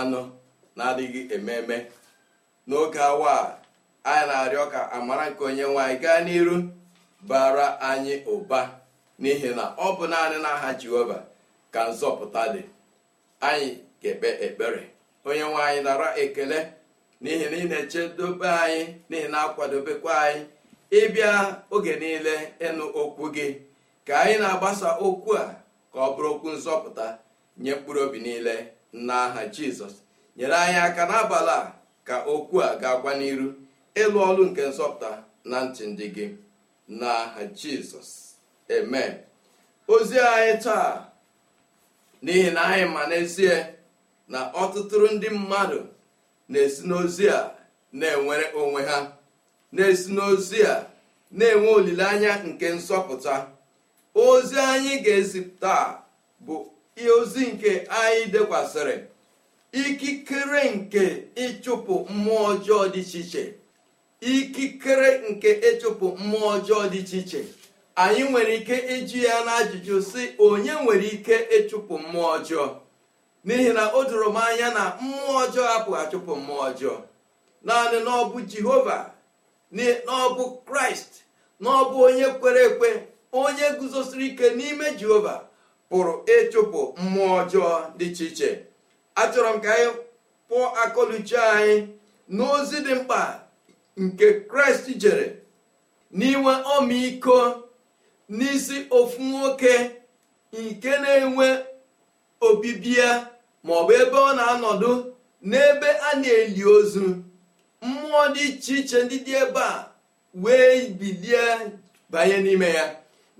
anụ na-adịghị ememe n'oge awa a anyị na-arịọ ka amara nke onye nwanyị gaa n'iru bara anyị ụba n'ihi na ọ bụ naanị n'aha jehova ka nzọpụta dị anyị ga-ekpe ekpere onye nwanyị nara ekele n'ihi na ị na-echedobe anyị n'ihi na akwadobekwa anyị ịbịa oge niile ịnụ okwu gị ka anyị na-agbasa okwu a ka ọ bụrụ okwu nzọpụta nye mkpụrụ obi niile n'aha jizọs nyere anyị aka n'abalị a ka okwu a ga-agwa n'iru ịlụ ọrụ nke nsọpụta na ntị ndị gị n'aha jizọs amen ozi anyị taa n'ihi na anyị ma n'ezie na ọtụtụrụ ndị mmadụ na-esi n'ozi a na-enwere onwe ha na-esi n'ozi a na-enwe olileanya nke nzọpụta ozi anyị ga-ezipụta bụ ihe ozi nke anyị dekwasịrị ikikere nke ịchụpụ mmụọ ọjọọ dị iche iche ikikere nke ịchụpụ mmụọ ọjọọ dị iche iche anyị nwere ike iji ya n'ajụjụ sị onye nwere ike ịchụpụ mmụọ ọjọọ n'ihi na o doro m anya na mmụọ ọjọọ apụghị achụpụ mmụọ ọjọọ naanị n'ọbụ jehova n'ọbụ kraịst n'ọbụ onye kwere ekwe onye guzosiri ike n'ime jehova pụrụ ịchụpụ mmụọ ọjọọ dị iche iche achọrọ m ka anyị pụọ akọluchi anyị n'ozi dị mkpa nke kraịst jere n'inwe ọmịiko n'isi ofu nwoke nke na-enwe obibi ya maọbụ ebe ọ na-anọdụ n'ebe a na-eli ozu mmụọ dị iche iche ndị dị ebe a wee bilie banye n'ime ya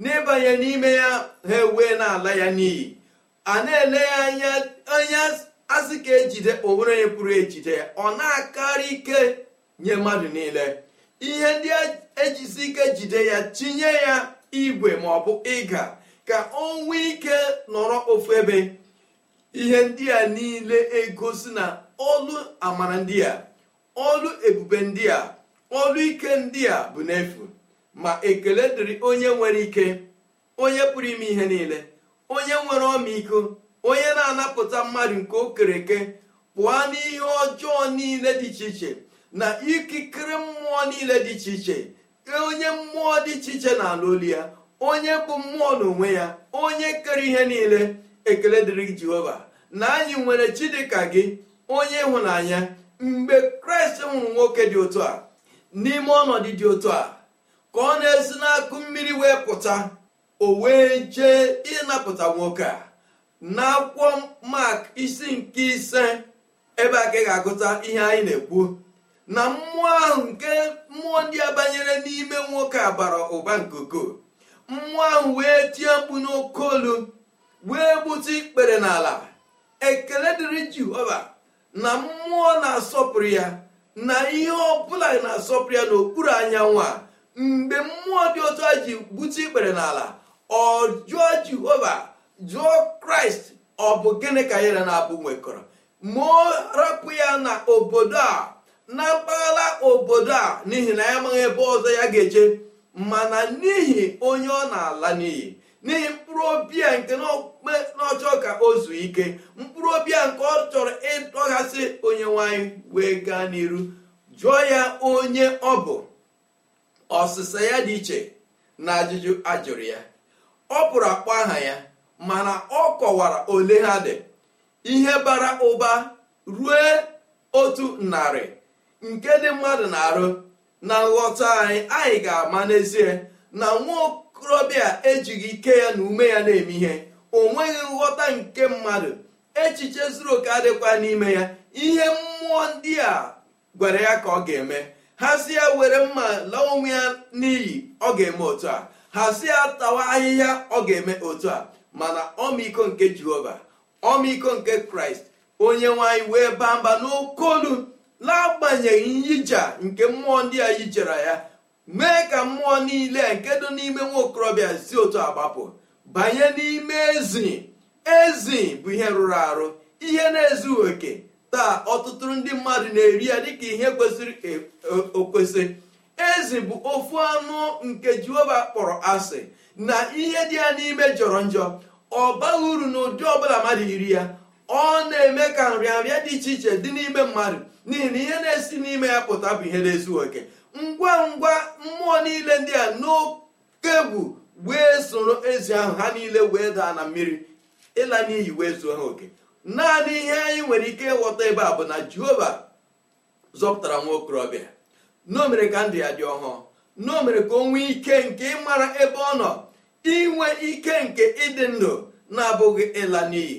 n'ịbanye n'ime ya ha ewee n'ala ya n'iyi a na-ele ya anya anya asị ka ejide onwere onye pụrụ ejide ọ na-akarị ike nye mmadụ niile ihe ndị ejisi ike jide ya tinye ya igwe ma ọ bụ ịga ka o nwee ike nọrọ ofu ebe ihe ndị a niile egosi na olu amara ndị a olu ebube ndị a olu ike ndị a bụ n'efu ma ekele dịrị onye nwere ike onye pụrụ ime ihe niile onye nwere ọmịiko onye na-anapụta mmadụ nke o kere eke pụọ n'ihe ọjọọ niile dị iche iche na ikikere mmụọ niile dị iche iche onye mmụọ dị iche iche na ala ya onye bụ mmụọ n'onwe ya onye kere ihe niile ekele dịrị jehova na anyị nwere chidịka gị onye ịhụnanya mgbe kraịst nwụrụ nwoke dị otu a n'ime ọnọdụ dị otu a ka ọ na-esi n'akụ mmiri wee pụta o wee jee ịnapụta nwoke a n'akwụkwọ mak isi nke ise ebe a ka ga-agụta ihe anyị na-ekwu na mmụọ ahụ nke mmụọ ndị a banyere n'ime nwoke a bara ụba nke ukoo mmụọ ahụ wee tie mkpu n'oke olu wee gbute ikpere n'ala ekele dịrị jehova na mmụọ na-asọpụrụ ya na ihe ọ bụla na-asọpụrụ ya n'okpuru anyanwụ a mgbe mmụọ dị otu a ji bute ikpere n'ala ọ jụọ jehova jụọ kraịst ọ bụ gịnị ka yere na-abụ nwekọrọ ma ọ rapụ ya na obodo a na mpaghara obodo a n'ihi na ya amaghị ebe ọzọ ya ga-eje mana n'ihi onye ọ na-ala n'iyi n'ihi mkpụrụ obi ya nke n'ọchọ ka o zuo ike mkpụrụ obi ya nke ọ chọrọ ịdọghasị onye nwanyị wee gaa n'iru jụọ ya onye ọ bụ ọsịsa ya dị iche na ajụjụ ajụrụ ya ọ pụrụ akpọ aha ya mana ọ kọwara ole ha dị ihe bara ụba rue otu narị nke dị mmadụ na-arụ na nghọta anyị anyị ga-ama n'ezie na nwa okorobịa ejighị ike ya na ume ya na-eme ihe o nweghị nghọta nke mmadụ echiche zuru oke adịkwa n'ime ya ihe mmụọ ndị a gwara ya ka ọ ga-eme hazie were mma laa onwe ya n'iyi ọ ga-eme otu a hazie tawa ahịhịa ọ ga-eme otu a mana ọmịiko nke jehova ọmịiko nke kraịst onye nwanyị wee baa mba n'okolu n'agbanyeghị nyija nke mmụọ ndị a yijere ya mee ka mmụọ niile nke dị n'ime nwa okorobịa si otu agbapụ banye n'ime ezi ezi bụ ihe rụrụ arụ ihe na-ezughị oke taa ọtụtụ ndị mmadụ na-eri ya dịka ihe kwesịrị e, okwesị ezi bụ ofu anụ nke jehova kpọrọ asị na ihe dị ya n'ime jọrọ njọ ọ baghị uru n'ụdị ọbụla mmadụ iri ya ọ na-eme ka nrịanrịa dị iche iche dị n'ime mmadụ n'ihi na ihe na-esi n'ime ya pụta bụ ihe na-ezu oke ngwa ngwa mmụọ niile ndị a n'oke bụ wee soro ezi ahụ ha niile wee daa na mmiri ịla n'iyi wee zuo ha oke naanị ihe anyị nwere ike ịghọta ebe a bụ na jehova zọpụtara nwa okorobịa n'o mere ka ndụ ya dị ọhụụ n'o mere ka o nwee ike nke ịmara ebe ọ nọ inwe ike nke ịdị ndụ na-abụghị ịla n'iyi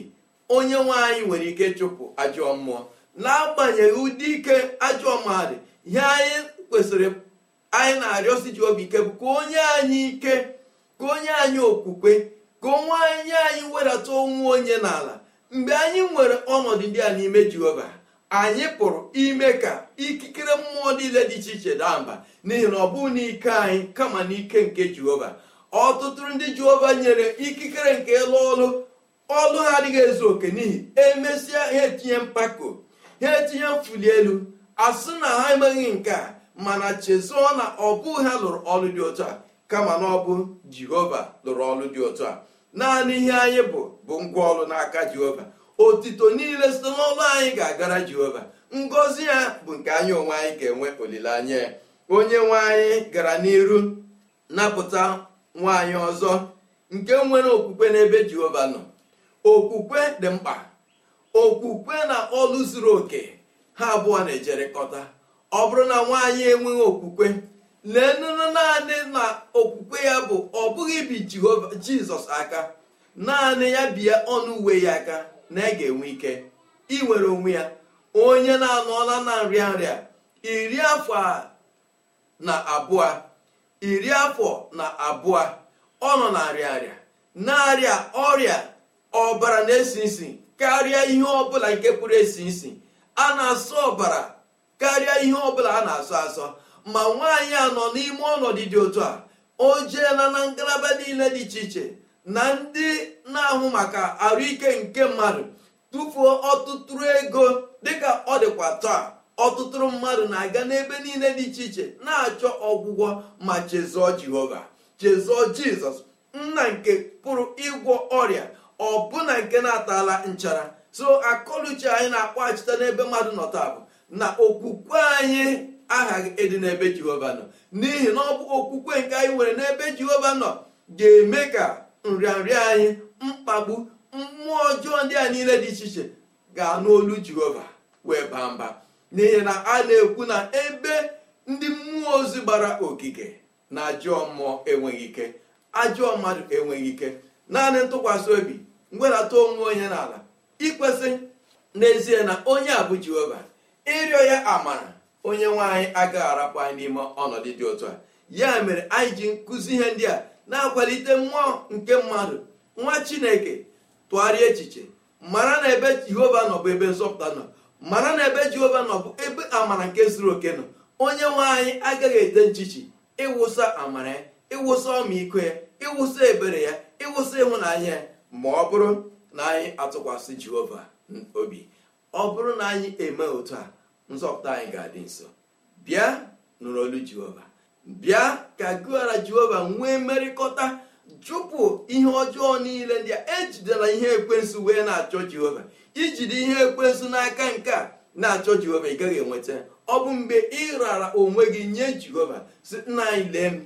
onye nwe anyị nwere ike chụpụ ajọ mmụọ na-agbanyeghị ụdị ike ajọ mmụọ ihe anyị kwesịrị anyị na-arịọsi ji obi ike bụ ka onye anyị ike ka onye anyị okwukwe ka onwe anyị anyị wedata onwe onye n'ala mgbe anyị nwere ọnọdụ ndị a n'ime jehova anyị pụrụ ime ka ikikere mmụọ niile dị iche iche daa mba n'ihi na ọ bụghị n'ike anyị kama n'ike nke jehova ọtụtụ ndị jehova nyere ikikere nke ịlụ ọlụ ọlụ ha adịghị ezu oke n'ihi emesịa ha etinye mpako ha etinye mfuli elu asị na ha emeghị nke a mana chezọọ na ọ bụghị ha lụrụ ọlụ dị ụtọ a kama na ọ bụ jehova lụrụ ọlụ dị ụtọ a naanị ihe anyị bụ bụ ngwa ọrụ n'aka jehova otito niile site n'ọlụ anyị ga-agara jehova ngọzi ya bụ nke anyị onwe anyị ga-enwe olileanya onye nwe anyị gara n'iru napụta nwaanyị ọzọ nke nwere okwukwe n'ebe jehova nọ okwukwe dị mkpa okwukwe na ọlụ zuru oke ha abụọ na kọta ọ bụrụ na nwaanyị enweghị okwukwe lee nụnụ naanị na ya bụ ọ bụghị bi jehova jizọs aka naanị ya bie ọnụ uwe ya aka na ị ga-enwe ike iwere onwe ya onye na-anọla na nrịa nrịa iri afọ na abụọ iri afọ na abụọ ọ nọ na nrịa nrịa na-arịa ọrịa ọbara na-esi isi karịa ihe ọbụla nke pụrụ esi isi a na-asọ ọbara karịa ihe ọbụla a na-asọ asọ ma nwaanyị a nọ n'ime ọnọdụ dị otu a o jeela na ngalaba niile dị iche iche na ndị na-ahụ maka arụike nke mmadụ tụfuo ọtụtụrụ ego dịka ọ dịkwa taa ọtụtụrụ mmadụ na-aga n'ebe niile dị iche iche na-achọ ọgwụgwọ ma chezọọ jehova chezọọ jizọs nna nke pụrụ ịgwọ ọrịa ọbụna nke na-atala nchara so akọluche anyị na-akpọghachite n'ebe mmadụ nọ taa bụ na okwukwe anyị aha gị ịdị n'ebe jehova nọ n'ihi na ọ bụ okwukwe nke anyị nwere n'ebe jehova nọ ga-eme ka nrịanrịa anyị mkpagbu mmụọ ọjọọ ndị a niile dị iche iche ga-anụ olu jehova wee baa mba n'ihi na a na-ekwu na ebe ndị mmụọ ozi gbara ogige na ajọọ mmụọ enweghị ike ajọọ mmadụ enweghị ike naanị ntụkwasị obi mgwedata onwe onye n'ala ikwesị n'ezie na onye a bụ jehova ịrịọ ya amara onye nwe anyị agaghị arapụ anyị n'ime ọnọdụ dị otu a ya mere anyị ji nkụzi ihe ndị a na-akwalite mmụọ nke mmadụ nwa chineke tụgharịa echiche mara na ebe jehova nọ bụ ebe nzọpụta nọ mara na ebe jehova nọ bụ ebe amara nke zuru oke nọ onye nwe anyị agaghị ete nchichi ịwụsa amara ya ịwụsa ọmịiko ya ịwụsa ebere ya ịwụsa ịhụnanya ya ma ọ bụrụ na anyị atụkwasị jehova obi ọ bụrụ na anyị eme otu a nzọpụta anyị ga-adị nso bịa nụrụ olu jehova bịa ka gụara jehova nwee mmerịkọta chụpụ ihe ọjọọ niile ndị a ejidela ihe ekwensu wee na-achọ jehova ijide ihe ekwensu n'aka nke a na-achọ jehova ị gaghị enweta ọ bụ mgbe ị rara onwe gị nye jehova si nna anyị lee m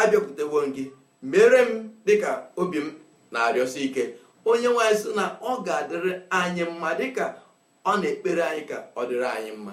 abịakwutewo gị mere m dịka obi m na-arịọsi ike onye nwaanyị sị na ọ ga-adịrị anyị mma dịka ọ na-ekpere anyị ka ọ dịrị anyị mma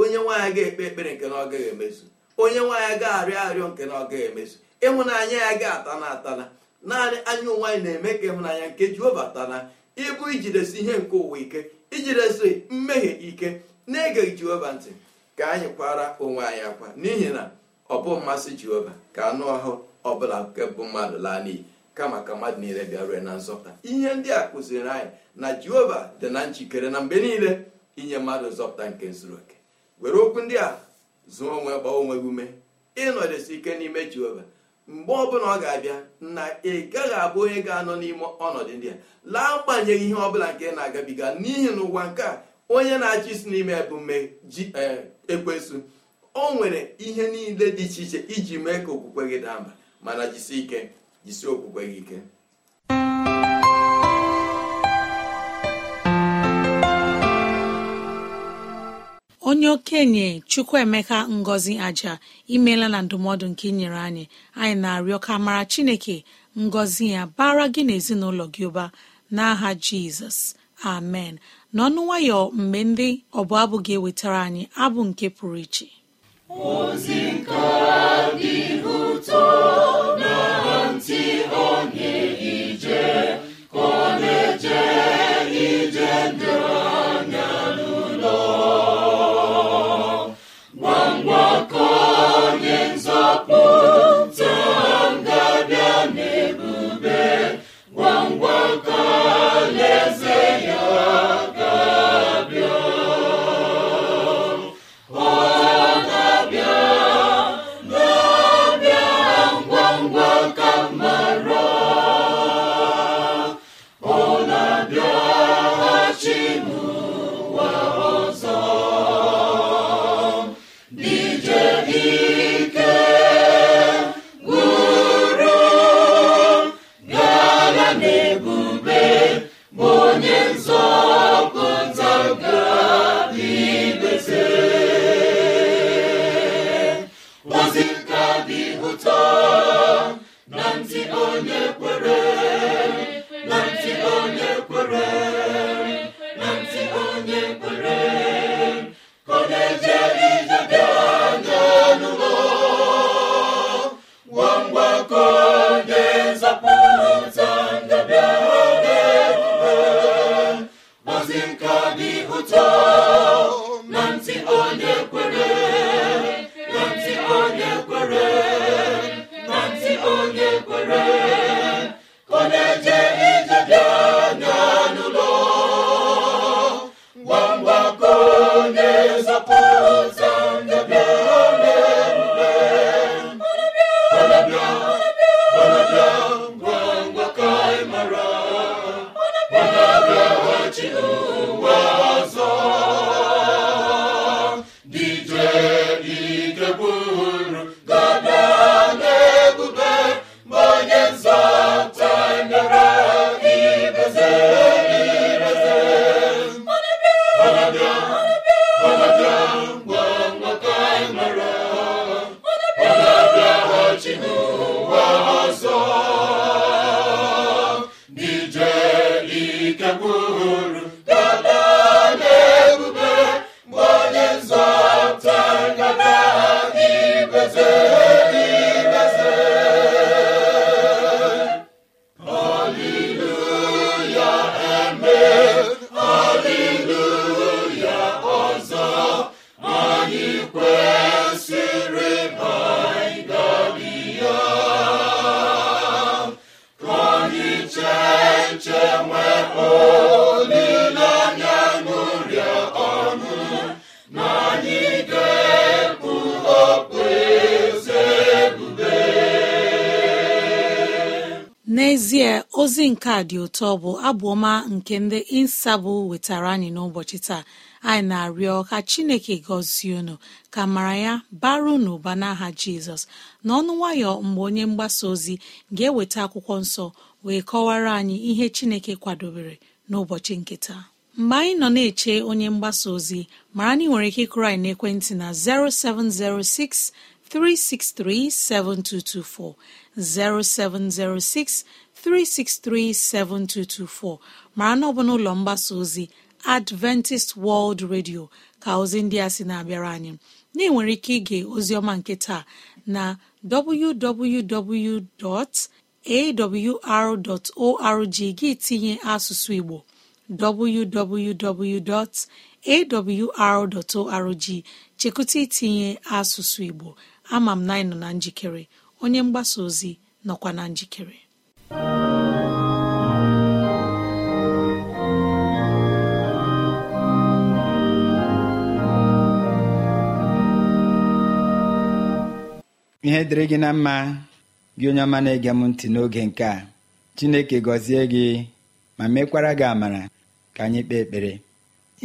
onye nwaanyị ga-ekpe ekpere nke na ọ gaghị emezu onye nwaanyị ga-arịọ arịọ nke na ọ gaghị emezu ịhụnanya ya ga-atana atana naanị anya onwe anyị na-eme ka ịhụnanya nke jehova tana ịbụ ijidesi ihe nke ụwa ike ijidesi mmehie ike na-egeghị jehova ntị ka anyị kwara onwe anyị akwa n'ihi na ọ bụ mmasị jehova ka anụ ọhụụ ọ nke bụ mmadụ laa n'iyi kama ka mmadụ niile bịarue na nzọpụta ihe ndị a kụziri anyị na jehova dị na njikere na mgbe niile inye mmadụ nzọpụta nke zuru oke were okwu ndị a zụọ onwe gbaa onwe gị ume ịnọdesi ike n'ime jehova mgbe ọbụla ọ ga-abịa na ị gaghị abụ onye ga-anọ n'ime ọnọdụ ndị a laa agbanyeghị ihe ọbụla nke na-agabiga n'ihi na ụwa nke a onye na-achị isi n'ime ebume ji e, o nwere ihe niile dị iche iche iji mee ka okwukwe gị daa mba mana jisi ike jisi okwukwe gị ike onye okenye chukwuemeka ngọzi aja imela na ndụmọdụ nke inyere anyị anyị na-arịọ ka mara chineke ngọzi ya bara gị n'ezinụlọ gị ụba n'aha jizọs amen n'ọnụ nwayọ mgbe ndị ọbụ abụ ga-ewetara anyị abụ nke pụrụ iche ntị ozi nke a dị ụtọ bụ abụọma nke ndị insabụ wetara anyị n'ụbọchị taa anyị na-arịọ ka chineke gọzie unu ka mara ya baru n'ụba n'aha jizọs n'ọnụ nwayọ mgbe onye mgbasa ozi ga-eweta akwụkwọ nsọ wee kọwara anyị ihe chineke kwadobere n'ụbọchị nke taa mgbe anyị nọ na-eche onye mgbasa ozi mara na ị nwere ike ịkụrụ anyị n'ekwentị na 0706 363-7224, mara na ọ bụ n'ụlọ mgbasa ozi Adventist World Radio ka ozi ndị a sị na-abịara anyị na nwere ike ige ozioma nke taa na www.awr.org gị asụsụ Igbo arorg chekụta itinye asụsụ Igbo ama m na anyị nọ na njikere onye mgbasa ozi nọkwa na njikere ihe dịrị gị na mma gị onye ọma na-ege m ntị n'oge nke a chineke gọzie gị ma mekwara gị amara ka anyị kpee ekpere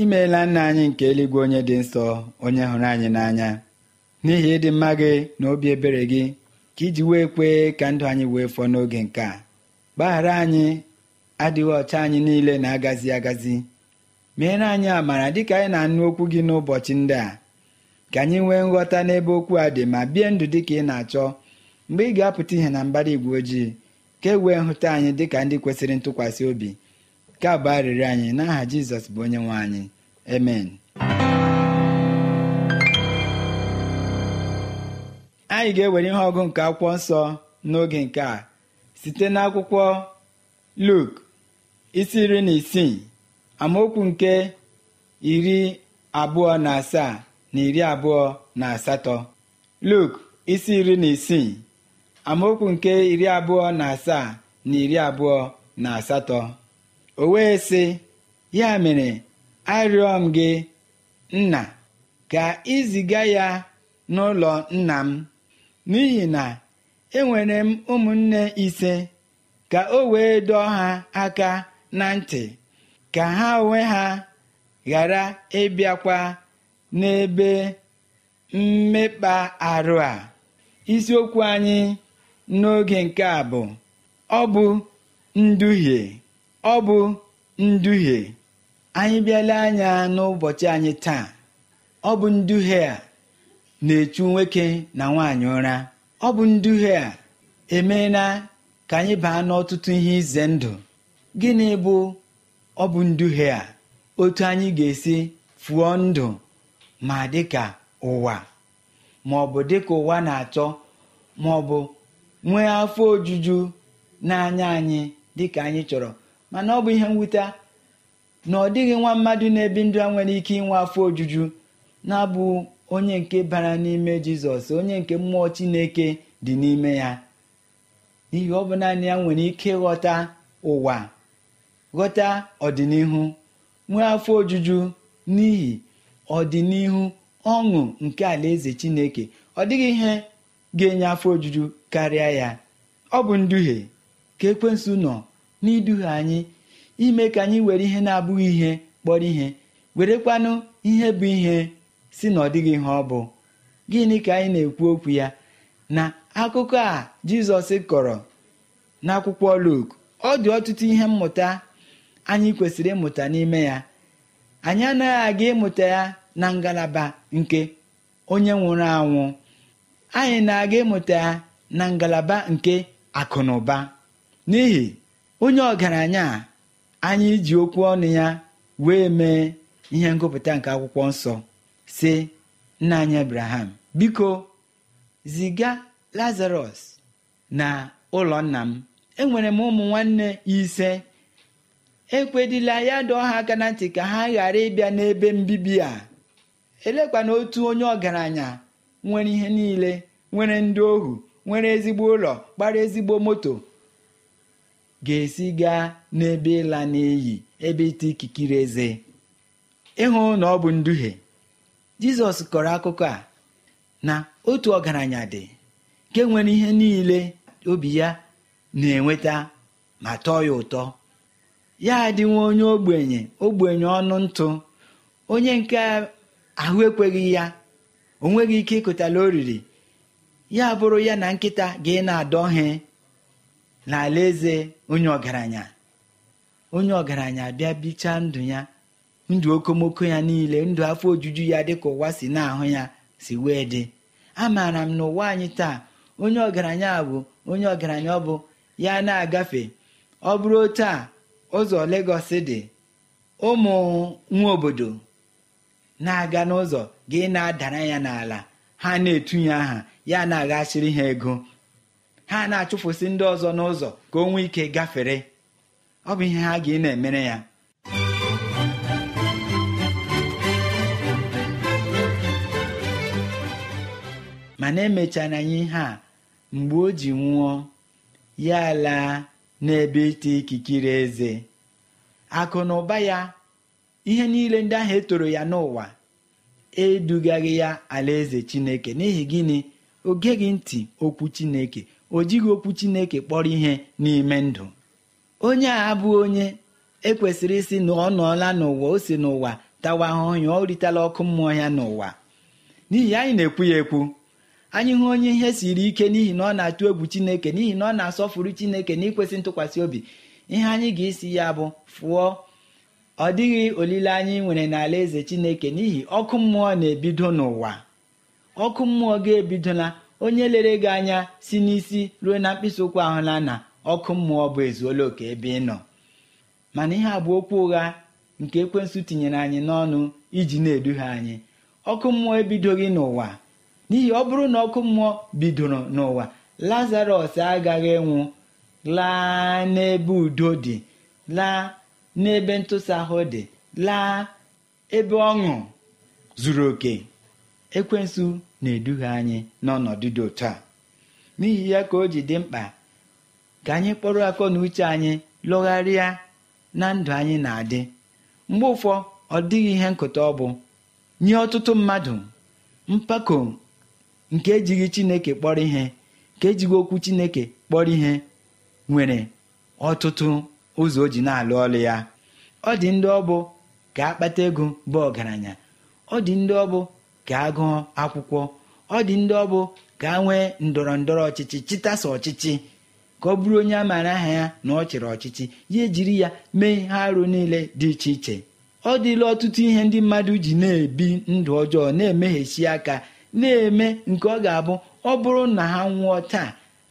imeela nna anyị nke eluigwe onye dị nsọ onye hụrụ anyị n'anya n'ihi ịdị mma gị na obi ebere gị ka iji wee kwee ka ndụ anyị wee fọọ n'oge nke a gbaghara anyị adịghị ọcha anyị niile na-agazi agazi meere anyị amara dịka anyị na-anụ okwu gị n'ụbọchị ndị a ka anyị nwee nghọta n'ebe okwu a dị ma bie ndụ dị ka ị na-achọ mgbe ị ga-apụta ihe na mbara igwe ojii ka e wee hụta anyị dị ka ndị kwesịrị ntụkwasị obi ka bụ arịrị anyị n'aha Jizọs bụ onye nwe anyị emen anyị ga-ewere ihe ọgụ nke akwụkwọ nsọ n'oge nke a site n'akwụkwọ luk isi iri na isii amaokwu nke iri abụọ na asaa na iri abụọ na asatọ luk isi iri na isii amaokwu nke iri abụọ na asaa na iri abụọ na asatọ o wee sị ya mere arịọ m gị nna ka ị ziga ya n'ụlọ nna m n'ihi na enwere m ụmụnne ise ka o wee dọọ ha aka na ntị ka ha onwe ha ghara ịbịakwa n'ebe mmekpa arụ a isiokwu anyị n'oge nke a bụ ọ bụ nduhie ọ bụ nduhie anyị bịala anya n'ụbọchị anyị taa ọ bụ nduhie a na-echu nwoke na nwaanyị ụra ọ bụ nduhie a emeela ka anyị baa n'ọtụtụ ihe ize ndụ gịnị bụ ọ bụ nduhie a otu anyị ga-esi fụọ ndụ ma dịka ụwa ma ọ bụ dịka ụwa na-achọ ma ọ bụ nwee afọ ojuju n'anya anyị dịka anyị chọrọ mana ọ bụ ihe mwute na ọ dịghị nwa mmadụ na-ebi ndụ a nwere ike inwe afọ ojuju na-abụ onye nke bara n'ime jizọs onye nke mmụọ chineke dị n'ime ya n'ihi ọ bụ naanị ya nwere ike ghọta ụwa ghọta ọdịnihu nwee afọ ojuju n'ihi ọdịnihu ọṅụ nke alaeze chineke ọ dịghị ihe ga-enye afọ ojuju karịa ya ọ bụ nduhie ka ekwensu nọ n'iduhie anyị ime ka anyị were ihe na-abụghị ihe kpọrọ ihe werekwanụ ihe bụ ihe si na ọ dịghị ihe ọ bụ gịnị ka anyị na-ekwu okwu ya na akụkọ a jizọs kọrọ n'akwụkwọ Luk ọ dị ọtụtụ ihe mmụta anyị kwesịrị ịmụta n'ime ya anyị anaghị aga ịmụta ya na ngalaba nke onye nwụrụ anwụ anyị na-aga ịmụta ya na ngalaba nke akụ n'ihi onye ọgaranya anyị ji okwu ọnụ ya wee mee ihe ngụpụta nke akwụkwọ nsọ si nna anyị abraham biko ziga lazarus na ụlọ nna m enwere m ụmụ nwanne ise ekwedila ya dị ọha aka na ntị ka ha ghara ịbịa n'ebe mbibi a elekwana otu onye ọgaranya nwere ihe niile nwere ndị ohu nwere ezigbo ụlọ gbara ezigbo moto ga-esi gaa n'ebe ịla n'iyi ebe ite ikikiri eze ịhụ na ọ bụ nduhie jizọs kọrọ akụkọ a na otu ọgaranya dị nke nwere ihe niile obi ya na-enweta ma tọọ ya ụtọ ya nwa onye ogbenye ogbenye ọnụ ntụ onye nke ahụ ekweghị ya o nweghị ike ịkụtala oriri ya bụrụ ya na nkịta ga ị na-adọhe n'alaeze onye ọgaranya onye ọgaranya bịa bichaa ndụ ya ndụ okomoko ya niile ndụ afọ ojuju ya dịka ụwa si na-ahụ ya si wee dị amaara m na ụwa anyị taa onye ọgaranya bụ onye ọgaranya ọ bụ ya na-agafe ọ bụrụ otu a ụzọ Legọs dị ụmụ nwa obodo na-aga n'ụzọ gị na-adara ya n'ala ha na-etunye aha ya na-aghachiri ha ego ha na-achụfụsị ndị ọzọ n'ụzọ ka o nwee ike gafere ọ bụ ihe ha ga na-emere ya mana emechara anyị ihe a mgbe o ji nwụọ ya laa n'ebe ite ikikere eze akụ na ụba ya ihe niile ndị ahụ etoro ya n'ụwa edugaghị ya alaeze chineke n'ihi gịnị o geghị ntị okwu chineke o jighị okwu chineke kpọrọ ihe n'ime ndụ onye a abụghị onye ekwesịrị isi na ọ nọọla n'ụwa o si n'ụwa tawa ahụhụ ya ọ ritela ọkụ mmụọ ya n'ụwa n'ihi anyị na-ekwu ya ekwu anyị hụ onye ihe siri ike n'ihi na ọ na-atụ egwu chineke n'ihi na ọ na-asọfuru chineke na ikwesị ntụkwasị obi ihe anyị ga-esi ya bụ fụọ ọ dịghị olileanya ị nwere n'ala eze chineke n'ihi ọkụ mmụọ na-ebido n'ụwa ọkụ mmụọ ga-ebidola onye lere gị anya si n'isi ruo na mkpịsị ụkwụ ahụla na ọkụ mmụọ bụ ezuola oke ebe ị nọ mana ihe abụ okwu ụgha nke ekwensu tinyere anyị n'ọnụ iji na-eduhie anyị ọkụ mmụọ ebidoghị n'ụwa n'ihi ọ bụrụ na ọkụ mmụọ bidoro n'ụwa lazarọs agaghị nwụ laa n'ebe udo dị laa n'ebe ntụsa ahụ dị laa ebe ọṅụ zuru oke ekwensu na-eduhie anyị n'ọnọdụ dị otu a n'ihi ya ka o ji dị mkpa ka anyị kpọrọ akọ na uche anyị lọgharịa na ndụ anyị na-adị mgbe ụfọ ọ dịghị ihe nkụta ọ bụ nye ọtụtụ mmadụ mpako nke ejighị chineke kpọrọ ihe nke ejighị okwu chineke kpọrọ ihe nwere ọtụtụ ụzọ o ji na-alụ ọlụ ya ọ dị ndị ọbụ ka akpata ego bụ ọgaranya ọ dị ndị ọbụ ka gụọ akwụkwọ ọ dị ndị ọbụ ka a nwee ndọrọ ndọrọ ọchịchị chịtasa ọchịchị ka ọ bụrụ onye a maara aha ya na ọ chịrị ọchịchị ya ejiri ya mee ihe arụ niile dị iche iche ọ dịla ọtụtụ ihe ndị mmadụ ji na-ebi ndụ ọjọọ na-emeghesi aka na-eme nke ọ ga-abụ ọ bụrụ na ha nwụọ taa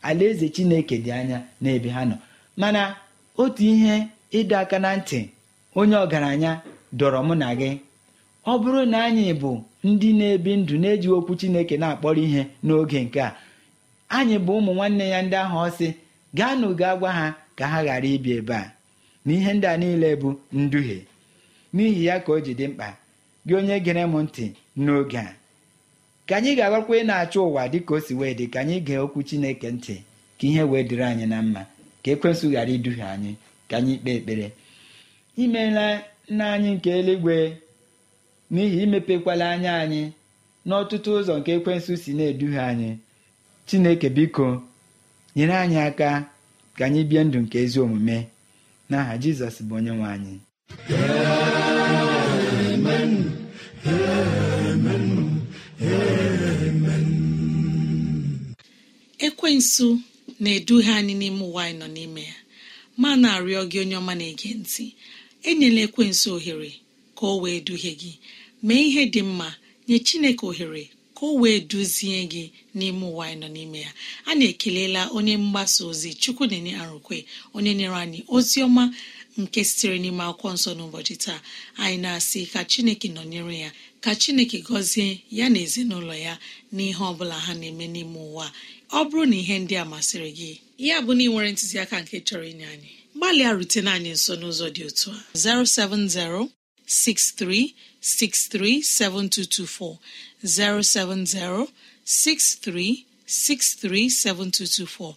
alaeze chineke dị anya n'ebe ha nọ mana otu ihe ịdọ aka na ntị onye ọgaranya dọrọ mụ na gị ọ bụrụ na anyị bụ ndị na-ebi ndụ na-eji okwu chineke na-akpọrọ ihe n'oge nke a anyị bụ ụmụ nwanne ya ndị ahụ ọsị gaa na uga gwa ha ka ha ghara ibi ebe a na ihe ndị a niile bụ nduhie n'ihi ya ka o ji dị mkpa gị onye gere m ntị n'oge a ka anyị ga ị na-achọ ụwa dịka o si wee dị ka anyị gee okwu Chineke ntị ka ihe wee dịrị anyị na mma ka ekwensụ ghara iduhie anyị ka anyị kpee ekpere imela nna anyị nke eluigwe n'ihi imepekwala anya anyị n'ọtụtụ ụzọ nke ekwensụ si na-eduhie anyị Chineke biko nyere anyị aka ka anyị bie ndụ nke ezi omume n'aha Jizọs bụ onye nwe anyị ekwensu na-eduhie anyị n'ime ụwa anyị nọ n'ime ya ma na-arịọ gị onye ọma na-ege ntị enyela ekwensu ohere ka o wee duhie gị mee ihe dị mma nye chineke ohere ka o wee duzie gị n'ime ụwa anyị nọ n'ime ya a na-ekelela onye mgbasa ozi chukwu na-enye arụkwe onye nyere anyị ozi ọma nke sitere n'ime akwụkwọ nsọ n'ụbọchị taa anyị na-asị ka chineke nọnyere ya ka chineke gọzie ya na ezinụlọ ya n'ihe ọ bụla ha na-eme n'ime ụwa ọ bụrụ na ihe ndị a masịrị gị ya bụ na ị nwere ntụziaka nke chọrọ inye anyị gbalịa rutene anyị nso n'ụzọ dị otu a 07063637224 7224.